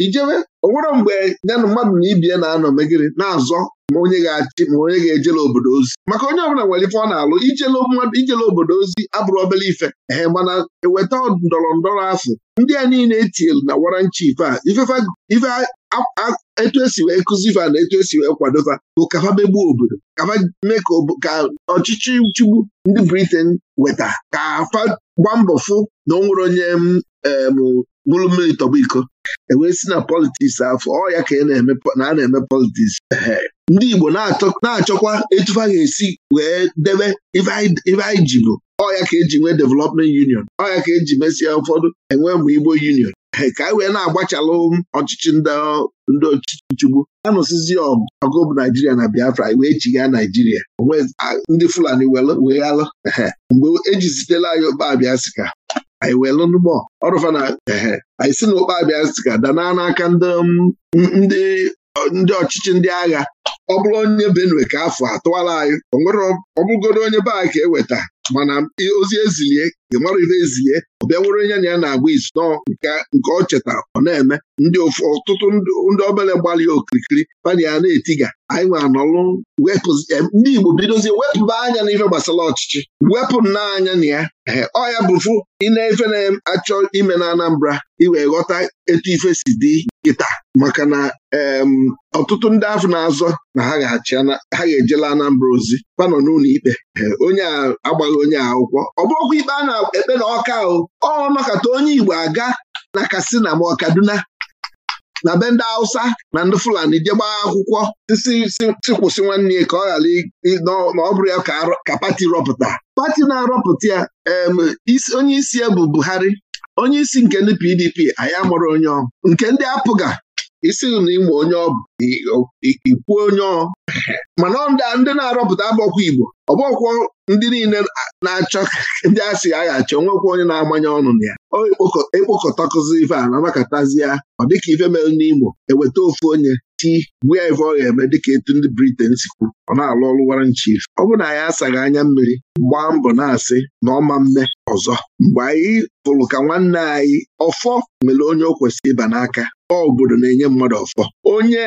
ijewe onwere mgbe ya na mmadụ na ibie na-anọ megịrị na-azọ ma onye ga-achị ma onye ga-ejela obodo ozi maka onye ọbụla nwere ife ọ na-alụ ijele obodo ozi abụrụ obere ife ee mana eweta ndọrọ ndọrọ afọ ndị a niile etinyelu na waranchi ife a ife etu esi wee fa na etu esi wee kwadoba bụ kafa megbuo obodo kafa mee ka ọchịchị nchigbu ndị Briten weta ka afa gba mbọ fụ na ọ nwere onye bụrụ mmiri tọba iko ewee si na politiks afọ ọ ya ka e na a na-eme politiks ndị Igbo na-achọkwa etufa ga-esi wee debe ife anyị ji bụ ọ ya ka eji nwee development union ọ ya ka eji mesịa ụfọdụ enwe mụ Igbo union ka anyị wee na-agbachalụ ọchịchị ndị ọchịchị nchigbu anụsizi ọgụ bụ naijiria na biafra wee chigha naijiria onwe ndị fulani wee alụ mgbe ejizitela anyị okpa abịa sika anyị wee lụnụgbọ ọrụfa na ehe anyị si na okpa abịa sika danaa n'aka ndị ọchịchị ndị agha ọ bụrụ onye benue ka afọ atụwala anyị ọ bụrụgoro onye be eweta mana ozi ezilie ị mara ife ezie ọ bịa were onye na ya na-agwa isi nọọ nke ọ cheta ọ na-eme ndị ọtụtụ ndị obere gbalị okirikiri pana ya na-etiga anyị nwe anọlụ ndị Igbo bidozie wepụba anya n'ife gbasara ọchịchị wepụ n'anya na ya ọ ya bụfu ịna-efe na-achọ ime na Anambra iwee ghọta etu ife si dị kịta maka na ọtụtụ ndị afọ na-azọ na ha ga-ejela Anambra ozi Panọ n'ụlọ ikpe onye agbaghị onye akwụkwọ ọ bụrụkwa ikpe a ekpe na ọka o ọ makata onye Igbo aga na kasina ma na be ndị Hausa na ndị Fulani je akwụkwọ si kwụsị nwanne ka ọ ghara na ọ bụrụ ya ka pati rọpụta pati na-arọpụta ya onye isi ya bụ Buhari onye isi nke ndị PDP anyị amụrụ onye nke ndị apụga isi na ịma onye ikwuo onye ọ mana ndị na-arọpụta abọkwa Igbo ọbọkwọ ndị niile na-achọ ndị asị aghachi onwekwa onye na-amanye ọnụ na ya ekpokọtakụzi ife a na ya ọ dịka ife mere n'Imo eweta ofu onye chi gwuo ife ọ ga-eme dịka etu ndị Briten si kwu ọ na-alụ ọrụ Warrant Chief ọ bụ na anyị asaghị anya mmiri gbaa mbọ na-asị na ọma mme ọzọ mgbe anyị fụrụ ka nwanne anyị ọfọ mere onye o kwesịrị ịba n'aka obodo na-enye mmadụ ọfọ onye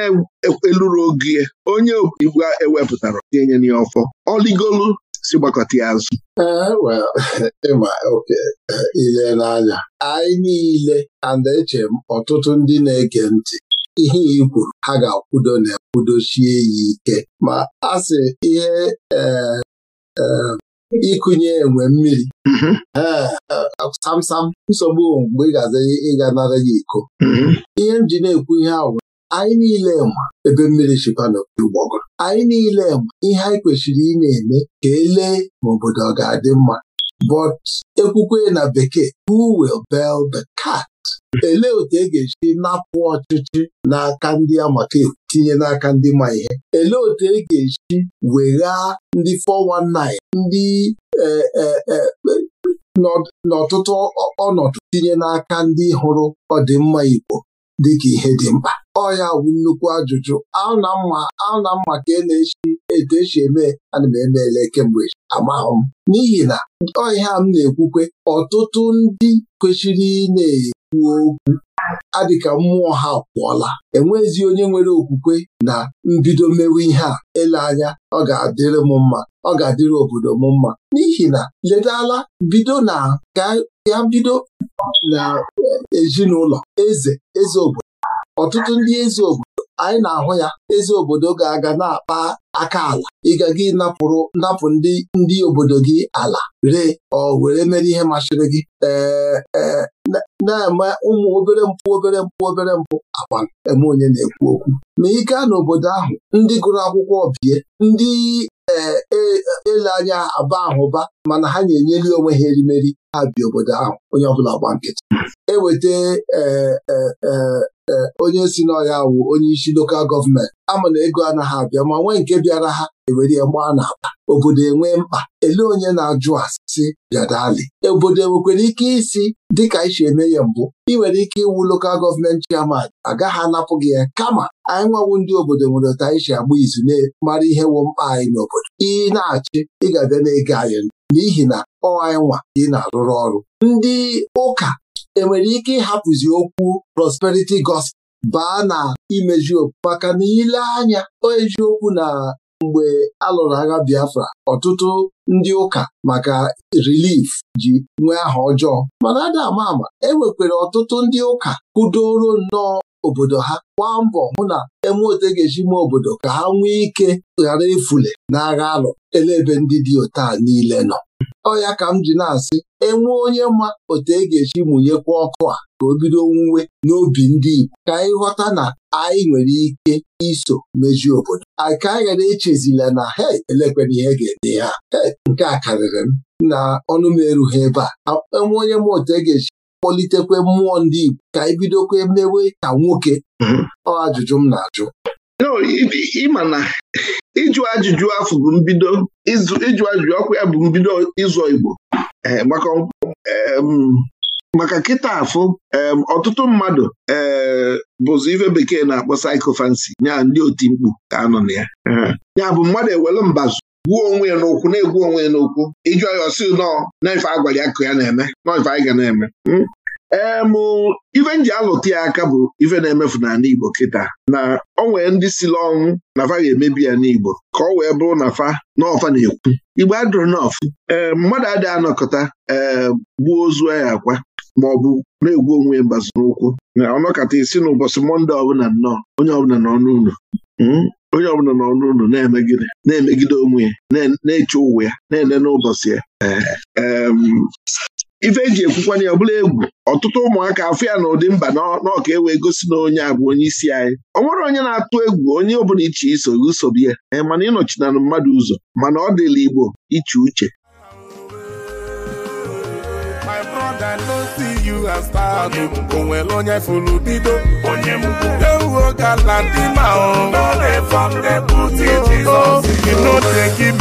eluru ogie onye igwe ewepụtara tinye na ọfọ ọligolu si gbakọta ya azụ e, e, ile n'anya anyị niile and eche ọtụtụ ndị na-ege ntị ihe i ha ga-akwudo na sie ya ike ma a sị ihe e, ịkụnye enwe mmiri samsam mm-hmm. nsogbu mgbe ị gaza ịga nara ya iko mm-hmm. ihe m ji na-ekwu ihe ahụ anyị niile ma ebe mmiri chịkwana ụgbọgụ anyị niile ma ihe anyị kwesịrị ị na-eme ka elee ma obodo ọ ga-adị mma but ekwukwe na bekee who will bell the cat elee otu e ga-esi napụ ọchịchị n'aka ndị amaka tinye n'aka ndị ma ihe elee otu e ga-esi weghaa ndị 419 ndị e, e, e, n'ọtụtụ ọnọdụ tinye n'aka ndị hụrụ ọdịmma Igbo dịka ihe dị mkpa ọ ya bụ nnukwu ajụjụ ahụ na mma ka e na-echi etu esi eme ana m emeele kemgbe amahụ m n'ihi na ọ ihe a m na-ekwukwe ọtụtụ ndị kwesịrị ị na-ekwu okwu adịka mmụọ ha pụọla enwezi onye nwere okwukwe na mbido mewe ihe a ele anya ọ ga-adịrị m mma ọ ga-adịrị obodo m mma n'ihi na ledala bido na ga bido na ezinụlọ eze eze obodo ọtụtụ ndị eze obodo anyị na-ahụ ya eze obodo ga-aga na-akpa aka ala ịga gị napụrụ napụ ndị ndị obodo gị ala ree ọ were mere ihe masịrị gị ee e, na-eme ụmụ obere mpụ obere mpụ obere mpụ akwa eme onye na-ekwu okwu ma ike a n'obodo ahụ ndị gụrụ akwụkwọ bie ndị eh, e, ele anya aba ahụba mana ha na-enyeli onwe ha erimeri ha obodo ahụ onye ọbụla gba nkịtị eweta e, e, e, onye si n'ọhịa wụ onye isi lokal gọọmenti ama na ego anaghị abịa ma nwee nke bịara ha ewere gbaa n'akpa obodo enwee mkpa ele onye na-ajụ asị bịadali obodo enwekwere ike isi dịka isi eme ya mbụ ị nwere ike iwu lokal gọọmenti chairman agaghị anapụ gị ya kama anyị nwawu ndị obodo nwere ụta anyị si agba izu na mara ihe wụ mkpa anyị n'obodo ị na-achị ị na-ege anyị n'ihi na ọ nwa ị na-arụrụ ọrụ ndị ụka enwere ike ịhapụzi okwu prosperity gospel baa na imeju maka na ile anya eziokwu na mgbe a lụrụ agha Biafra ọtụtụ ndị ụka maka relief ji nwee aha ọjọọ mana ada ama ama e enwekwara ọtụtụ ndị ụka kudoro nnọọ obodo ha gba mbọ hụ na eme otu e ga-eji mee obodo ka ha nwee ike ghara ifule n'agha alụ elebe ndị dị otu a niile nọ ọ ya ka m ji na-asị enwe onye ma otu e ga-eji mụnyekwa ọkụ a ka o bido nwuwe n'obi ndị Igbo ka anyị ghọta na anyị nwere ike iso mejie obodo anyị ka anyị ghara echezila na he elekwere ihe ga-ede ha nke a karịrị m na ọnụ m erughị ebe a enwe onye ma otu e ga-eji kpọlitekwe mmụọ ndị Igbo ka anyị e bidokwe mewe ka nwoke mhm. ọ ajụjụ m na-ajụ ịma na ịjụ ajụjụ afọ bụ mbido ịjụ ajụjụ ọkụ ya bụ mbido ịzụ Igbo eh, maka kịta afụ ọtụtụ mmadụ eh, bụzụ ife bekee na-akpọ saịkofansi ya ndị otimkpu ka anọ na ya mhm. ya bụ mmadụ ewele mbazụ gwuo onwe ya n'okwu na-egwu onwe ya n'okwu ijụ ya ọsị nọọ n'ife a gwara ya ka ya na-eme nọọ anyị ga na-eme hmm? em ife nji alụta ya aka bụ ife na-emefu n'ala Igbo kịta na ọ nwee ndị sila ọnwụ na fa ga-emebi ya n'Igbo ka ọ wee bụrụ na fa n'ọfa na-ekwu Igbo adụrụ n'ọfụ ee mmadụ adịghị anọkọta ee gbuo ozu ya akwa ma ọ bụ na-egwu onwe ya mbazi n'ụkwụ na ọnọkọta isi n'ụbọchị Mọnde ọbụla nnọọ onye ọbụla n'ọnụ ụlọ hmm? onye ọbụla nọ n'ụlọ na-emegide na-emegide onwe ya na-eche ụwa ya na-ele n'ụbọchị ya ehm, ife eji ekwukwana ya ọbụla egwu ọtụtụ ụmụaka afọ ya na ụdị mba n'ọka ewee wee gosi na onye a bụ onye isi anyị ọ nwere onye na-atụ egwu onye ọbụla iche iso usobe ya ee mana ịnọchinanụ mmadụ ụzọ mana ọ dịla Igbo iche uche you as onye fụrụ bido onye gala dị na ndị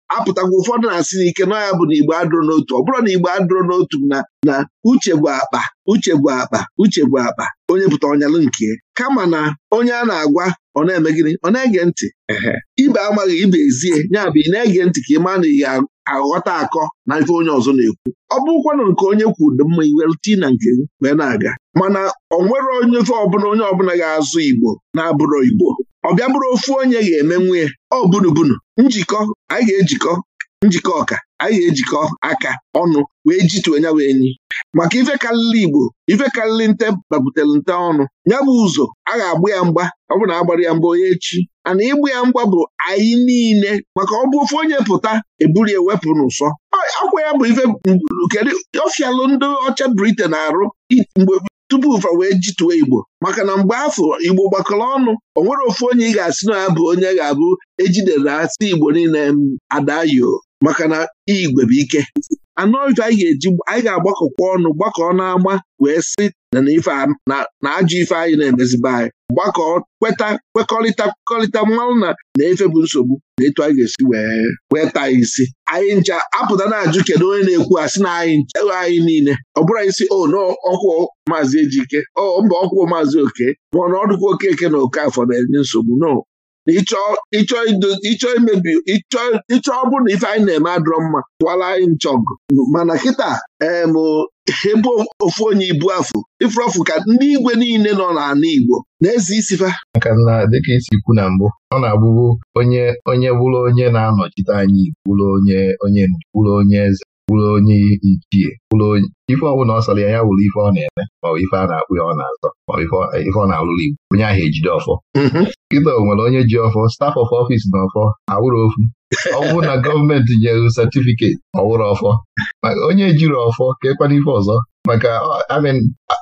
apụtakwa ụfọdụ na-asị n'ike nọ ya bụ na igbo adụrụ n'otu ọ bụrụ na igbo adụrụ n'otu na na uche bụ akpa uche bụ akpa uche bụ akpa onye pụta ọnyalụ nke kama na onye a na-agwa ọ na-eme gịnị ọ na-ege ntị ibe amaghị ibe ezie ya bụ ị na-ege ntị ka ị maa na ị aghọta akọ na ife onye ọzọ na-ekwu ọ bụrụkwana nke onye kwuru dị mma iwerute na nke wee na-aga mana ọ nwere onye ofe ọbụla onye ọbụla ga-azụ igbo na-abụrụ igbo ọ bịa bụrụ ofu onye ga-eme nwunye ọ bunubunu njikọ anyị ga-ejikọ njikọ ọka anyị ga-ejikọ aka ọnụ wee jitu nya wee maka ife karịrị Igbo ife karịrị nte gbabutere nte ọnụ ya bụ ụzọ a ga agbụ ya mgba ọ bụ na agbara ya mgba onye echi ana ịgba ya mgba bụ anyị niile maka ọ bụ ofe onye pụta eburu ewepụ n'ụsọ akwa ya bụ ife kedu ọfialụ ndị ọcha Britain arụ mgbe tupu ụfa wee jituwe Igbo maka na mgbe afọ Igbo gbakọrọ ọnụ o nwere ofu onye ị ga-asị na ya bụ onye ga-abụ ejidere asị Igbo niile adayo maka na igwe bụ ike anọ ọjọ anyị ga-eji anyị ga-agbakọkwa ọnụ gbakọọ n'ama wee sị na na ajọ ife anyị na emeziba anyị gbakọ kweta kwekọrịta kwekọrịta mmanwụ na na efe bụ nsogbu na etu anyị ga-esi wee taa isi anyị ncha apụta na-ajụ kedu onye na-ekwu asị na anyị ewe anyị niile ọ bụrụ anyị si o oh, na ọkwụ maazị Ejike oh, mba ọkwụ maazị Oke ma ọ na ọdụkwa Okeke na Okafọ na-enye nsogbu no imebi ịchọ ọ bụrụ na ife anyị na-eme adọrọ mma tụwara anyị nchọgụ mana kịta ebe ofu onye ibu afụ ifurọfụ ka ndị igwe niile nọ n'ala Igbo na-eze isifa maka na dịka isi kwu na mbụ ọ na-abụbu onye onye bụrụ onye na-anọchite anyị bụrụ onye bụrụ onye eze wụrụ onye ichie wụrụ onye ife ọbụla ọ sọrọ ya ya wụrụ ife ọ na-eme maọbụ ife a na-akpụ ya ọ na-azọ maọbụ ife ọ na-alụrụ igbo onye ahụ ejide ọfọ kịta mm-hmm. o nwere onye ji ọfọ staf of ọfịs na ọfọ awụrụ ofu ọ bụrụ na gọọmenti nyere sertifiketi ọwụrụ ọfọ onye ejiri ọfọ ka ekwana ife ọzọ maka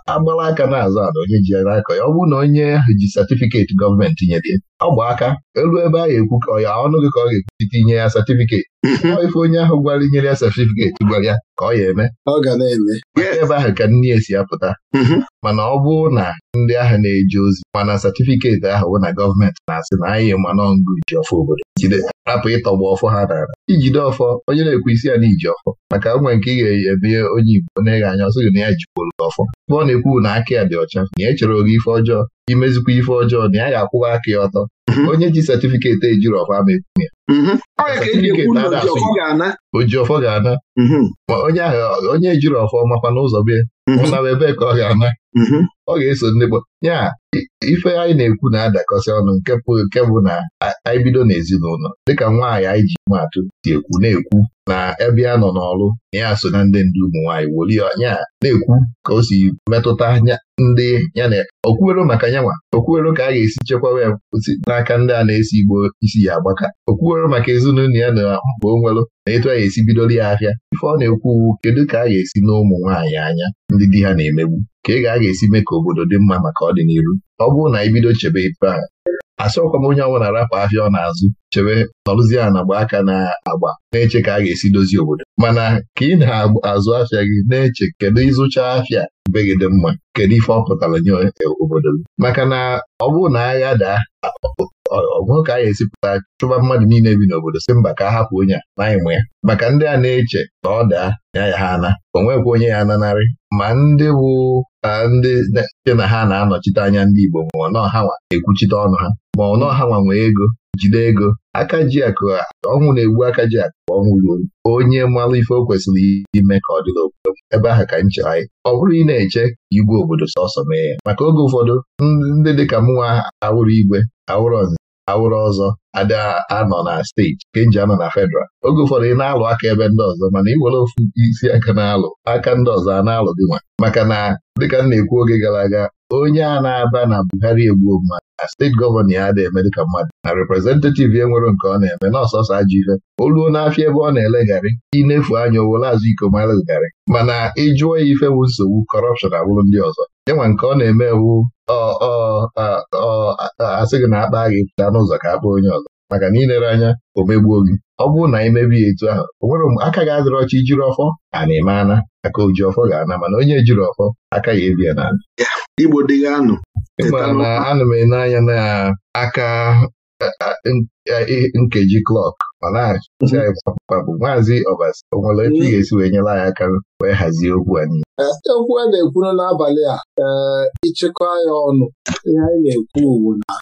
agbara aka na-azụ ala onye ji akọ ya ọ bụ na onye ahụ ji satifiketi gọọmenti ya. ọ gba aka elu ebe a ga-ekwu ka ya ọnụ gị ka ọ ga-ekwuchite inye ya satifiketi mhm. ọ ife onye ahụ gwara inyere ya satifiketi gwara ya ka ọ ya eme ọ ga na-eme ebe ahụ ka nne ya si apụta mhm. mana ọ bụrụ na ndị agha na-eje ozi mana satifiketi ahụ na gọọmenti na-asị na anyị mana ngụ iji ọfọ obodo hapụ rapụ ịtọgbu ọfọ ha nara ijide ọfọ onye na-ekwu isi ya na iji ọfọ maka nwe nke ị ga-eme onye Igbo na-eghe anya ọsọ gị na ya jikwuru ọfọ ọ na-ekwu na aka ya dị ọcha na ya e echere oge ife ọjọọ imezikwa ife ọjọọ na ya ga-akwụwa aka ya ọtọ mhm. onye ji satifiketi ejiri ọfọ ama mhm. e ekwu ya oji ga-ana mhm. onye ahụ onye ejiri ọfọ makwa n'ụzọ bịa ụnara mm-hmm. ebe ka ọ ga-ana mm-hmm. ọ ga-eso ndị gbo ya ife anyị na-ekwu na-adakọsị ọnụ nke nke bụ na anyị bido n'ezinụlọ dịka nwaanyị anyị ji matụ si ekwu na-ekwu na ebe ya nọ n'ọrụ na ya so na ndị ndị ụmụ nwaanyị woli ya na-ekwu ka o si metụta ndị ya na okwuwero maka nyanwa okwuwero ka a ga-esi chekwawa ya n'aka ndị a na-esi igbo isi ya agbaka okwuwero maka ezinụlọ ya na mkpa o nwere na etu a ga-esi bidola ya ahịa ife ọ na-ekwu uwu kedu ka a ga-esi na ụmụ nwaanyị anya ndị di ha na-emegbu ka ị ga-aga esi mee ka obodo dị mma maka ọdịnihu ọ bụrụ na bido chebe ife a asọkwa m onye ọnwa na-arapụ ahịa ọ na-azụ chebe nọrụzie a na aka na-agba na-eche ka a ga-esi dozie obodo mana ka ị na-azụ afịa gị na-eche kedu ịzụcha afịa be gị dị mma kedu ife ọ pụtara nye obodo gị maka na ọ bụrụ na agha daa ọgụ ka anyị esipụta chụba mmadụ niile bi n'obodo si mba ka a hapụ onye a n'anyị mụ ya maka ndị a na-eche na ọ daa ya ya ha ana o nwekwa onye ya ananarị ma ndị bụ ndị dị na ha na-anọchite anya ndị Igbo ma ọnọ ha nwa ekwuchite ọnụ ha ma ọnọ ha nwa nwee ego jide ego aka ji akụ ọnwụ na-egbu aka ji akụ ọnwụ ruo onye mmalụ ife o kwesịrị ime ka ọ dịla obodo ebe ahụ ka nche anyị ọ bụrụ ị na-eche ka igwe obodo sọsọ mee ya maka oge ụfọdụ ndị dịka mụnwa awụrụ igwe awụrụ awụrụ ọzọ ada e anọ na steeti nke nji anọ na fedral oge ụfọdụ ị na-alụ aka ebe ndị ọzọ mana iwere ofu isi aka na-alụ aka ndị ọzọ a na-alụ gị nwa maka na dịka m na-ekwu oge gara aga onye a na-aba na Buhari egbuo mmadụ na steeti gọvanọ ya ada eme dịka mmadụ na reprezentativ ya nwere nke ọ na-eme na ọsọsọ ajọ ife Oluo ruo n'afịa ebe ọ na ele garị, inefu anya owere azụ iko garị, mana ịjụọ ya ife bụ nsogbu kọrọpshọn abụrụ ndị ọzọ yanwa nke ọ na-eme ewu ọ asị gị na akpa gị pụta n'ụzọ ka akpa onye ọzọ maka na ilere anya o megbuo gị ọ bụrụ na anyị mebie etu ahụ o nwere mgbe aka gị adịrị ọcha jiri ọfọ a na-eme ana aka oji ọfọ ga-ana mana onye jiri ọfọ aka ya ebie na ịma na anụ m ene anya na aka nkeji klọk ma na maazị ọbasi onwere nwere ebe ị ga-esi wee nyere anyị aka wee hazie okwu anyị eh, okwu a na ekwu n'abalị a ee eh, ịchịkọ ya ọnụ ihe anyị na-ekwu uwu na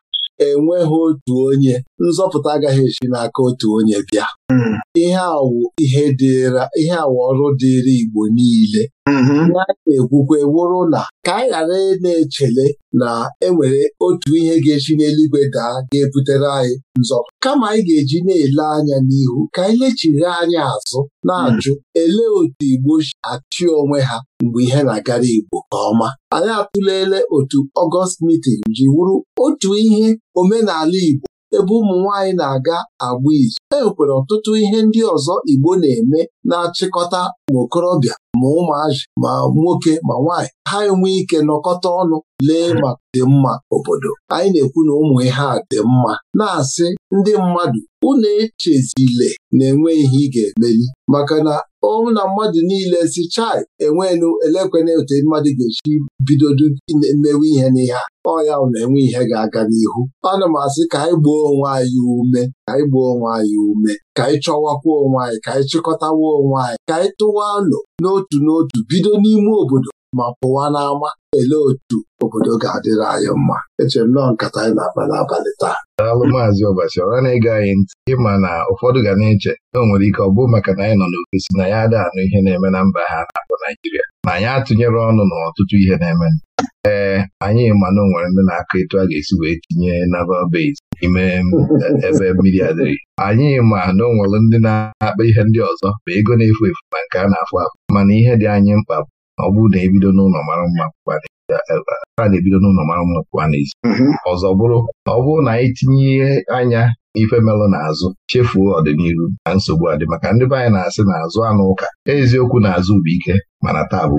enweghị otu onye nzọpụta agaghị esi n'aka otu onye bịa Mm-hmm. ihe awụ ihe dịra ihe awụ ọrụ dịịrị Igbo niile na mm-hmm. na-ekwukwe wụrụ na ka anyị ghara na-echele na enwere otu ihe ga-esi n'eluigwe daa ga-ebutere anyị nzọ kama anyị ga-eji na-ele anya n'ihu ka anyị lechiri anya azụ na-ajụ mm-hmm. elee otu Igbo si achị onwe ha mgbe ihe na-agara Igbo nke ọma anyị atụlele otu Ọgọst mitin ji wụrụ otu ihe omenala Igbo ebe ụmụ nwanyị na-aga agba izu e nwekwara ọtụtụ ihe ndị ọzọ Igbo na-eme na-achịkọta ma okorobịa ma ụmụazị ma nwoke ma nwanyị. ha enwe ike nọkọta ọnụ lee ma dị mma obodo anyị na-ekwu na ụmụ ihe a dị mma na-asị ndị mmadụ unu echezile na-enwe ihe ị ga-emeli maka na ọnwụ na mmadụ niile si chai enwenu elekwena otu mmadụ ga eji bidodo mewe ihe n'ihe a ọya na-enwe ihe ga-aga n'ihu ana m asị ka anyị gbuo onwe anyị ume ka anyị gbuo onwe anyị ume ka anyị chọwakwa onwe anyị ka anyị chịkọtawa onwe anyị ka anyị tụwa nụ n'otu n'otu bido n'ime obodo ma pụwa n'ama ele otu obodo ga-adịrị anyị mma echere m nọọ nkata anyị na-akpa n'abalị taa daalụ maazị ọbasi ọra na-ege anyị ntị ịma na ụfọdụ ga na-eche na o nwere ike ọ bụ maka na anyị nọ n'ofesi na ya adị anụ ihe na-eme na mba ha na-akpọ Naijiria na anyị atụnyere ọnụ n'ọtụtụ ihe na-eme ee anyị ma na onwere nwere ndị na-akọ etu a ga-esi wee tinye naval base n'ime eh, ebe mmiri adịrị anyị ma na onwere nwere ndị na-akpa ihe ndị ọzọ ma ego na-efu efu ma nke a na-afụ afụ mana ihe dị anyị mkpa bụ ọ bụrụ na ebido n'ụlọ mara mma a na-ebido n'ụlọ mara mma pụwa n'ezi mm-hmm. ọzọ bụrụ na ọ bụrụ na anyị e tinye anya ife melụ n'azụ chefuo ọdịnihu na nsogbu adị maka ndị be anyị na-asị na-azụ anụ ụka eziokwu na-azụ bụ ike mana taa bụ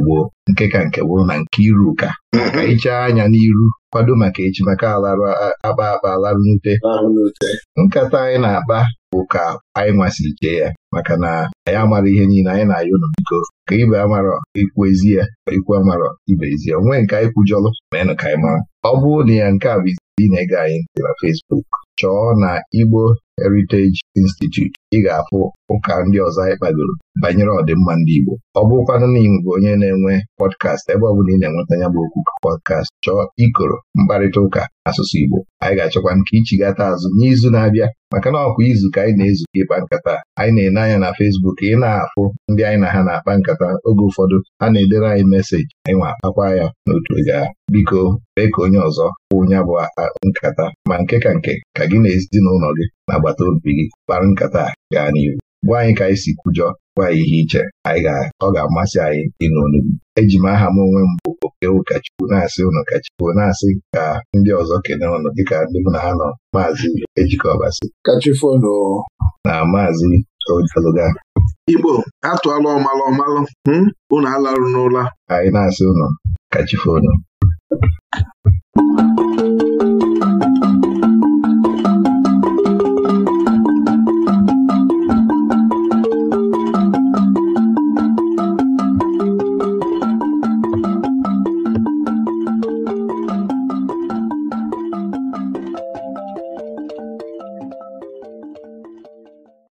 nke ka nke bụrụ na nke iru ụka mhm. ka ichaa anya n'iru kwado maka echi maka alarụ akpa akpa alarụ n'ute nkata anyị na-akpa bụ ka anyị nwasị chee ya maka na anyị amara ihe niile anyị na ayụ nụ ka ibe amarọ ikwu ezi ya ikwu amarọ ibe ezi ya onwe nke anyị kwujọlụ ma ịnụ ka anyị mara ọ bụrụ na ya nke a bụ ị na-ege anyị dị na Facebook chọọ na Igbo Heritage Institute ị ga-afụ ụka ndị ọzọ anyị kpagoro banyere ọdịmma ndị Igbo ọ bụrụkwanụ na ị bụ onye na-enwe pọdkast ebe ọ bụla ị na-enweta ya bụ okwu pọdkast chọọ ikoro mkparịta ụka asụsụ Igbo anyị ga-achọkwa nke ichigata azụ n'izu na-abịa maka na ọkwa izu ka anyị na-ezukọ ịkpa nkata anyị na-ene anya na Fesbuk ị na-afụ ndị anyị na ha na-akpa nkata oge ụfọdụ ha na-edere anyị meseji anyị nwa akpakwa ya n'otu ga biko mee ka onye ọzọ kwụ bụ nkata ma nke ka nke ka gị na ezinụlọ gị na agbata obi gị kpara nkata gaa n'ihu gwa anyị ka anyị si kwujọ gwa anyị ihe iche anyị ọ ga-amasị anyị ịnụ onugbu? eji m aha m onwe m bụ oke ụkọchukwu na-asị ụnụ kachukwu na-asị ka ndị ọzọ kene ụnụ dịka ndị m na ha nọ maazị ejikọbasị kachifonu na maazị oluga Igbo atụọla ọmalụ ọmalụ hmm? unu alarụ n'ụla anyị na-asị ụnụ kachifonu